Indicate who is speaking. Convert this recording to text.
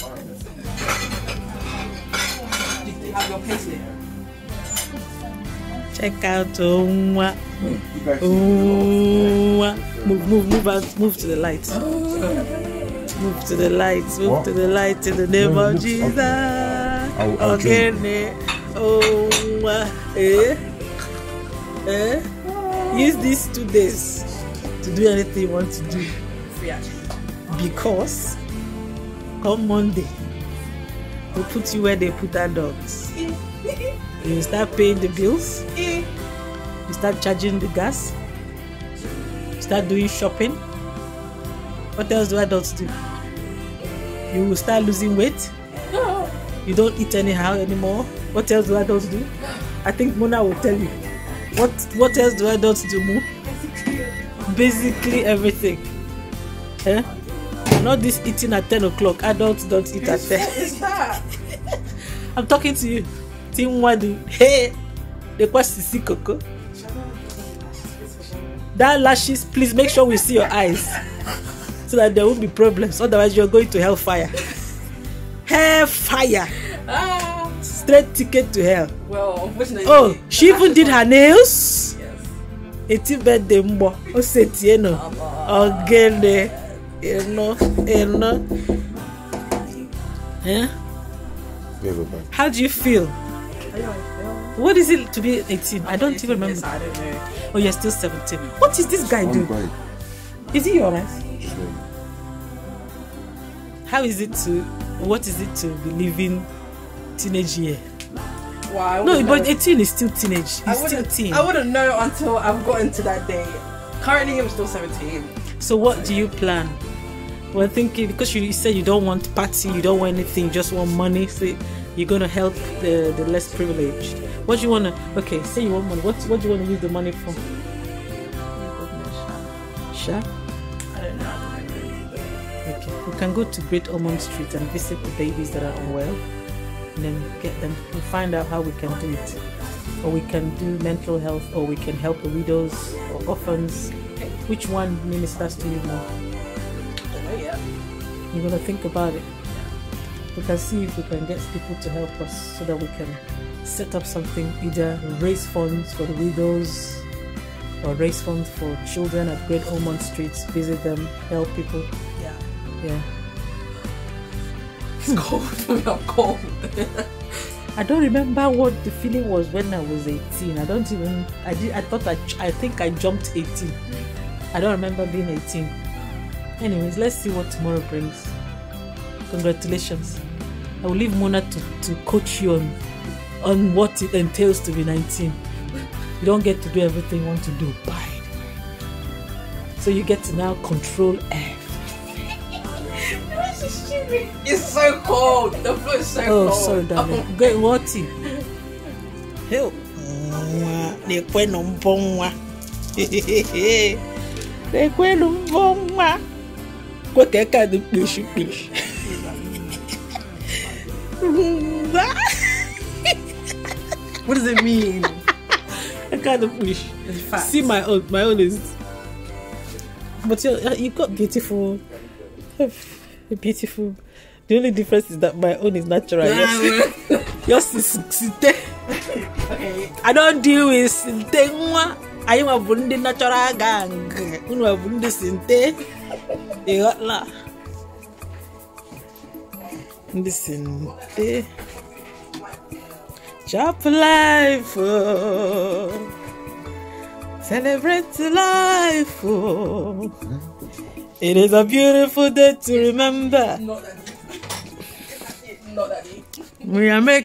Speaker 1: Check out Owa. Oh, Owa. Oh, move, move, move out. Move to the light. Move to the light. Move what? to the light in the name no, of Jesus. Okay, ne, Owa. Eh? Eh? Use these two days to do anything you want to do. Because come Monday, they put you where they put adults. you start paying the bills, you start charging the gas, you start doing shopping. What else do adults do? You will start losing weight. You don't eat anyhow anymore. What else do adults do? I think Mona will tell you. What What else do adults do, Mo? Basically everything. Huh? Eh? not this eating at ten o'clock adults don't eat at ten i'm talking to you ti nwadu hey the question is Coco. that lashes please make sure we see your eyes so that there won't be problems otherwise you're going to hellfire hellfire ah. straight ticket to hell well, unfortunately, oh she even did her nails. Yes. eti birthday mbọ o Oh, nọ ọgẹlẹ Eleanor, Eleanor. Yeah? How do you feel? What is it to be 18? I don't even remember. Oh, you're still 17. What is this guy doing? Is he alright? How is it to, what is it to be living teenage year? no, but 18 is still teenage. He's still teen. I wouldn't know until I've gotten to that day. Currently, I'm still 17. So, what do you plan? were thinking because you said you don't want party, you don't want anything, you just want money. So you're gonna help the, the less privileged. What do you wanna? Okay, say you want money. What what do you wanna use the money for? Sure. Okay. We can go to Great Ormond Street and visit the babies that are unwell, and then get them. we find out how we can do it, or we can do mental health, or we can help the widows or orphans. Which one ministers to you more? Yeah. We're going to think about it. Yeah. We can see if we can get people to help us so that we can set up something, either raise funds for the widows or raise funds for children at Great Ormond Streets, visit them, help people. Yeah. Yeah. It's cold. We are cold. I don't remember what the feeling was when I was 18. I don't even. I did. I thought I. I think I jumped 18. I don't remember being 18. Anyways, let's see what tomorrow brings. Congratulations. I will leave Mona to, to coach you on on what it entails to be 19. You don't get to do everything you want to do. Bye. So you get to now control everything. It's so cold. The floor is so oh, cold. Oh, sorry, darling. Get waty. Help. Nekwenu mbonwa. ko tɛ ka di kpesi what does it mean? I kind of wish. See my own, my own is. But you, you got beautiful, beautiful. The only difference is that my own is natural. Yeah, yours, yours is sinte. Okay. I don't deal with sinte. I am a natural gang. Unu a sinte. Bigot Listen, eh. Chop life. Oh. Celebrate life. Oh. It is a beautiful day to remember. Not that deep. Not that deep. We are making.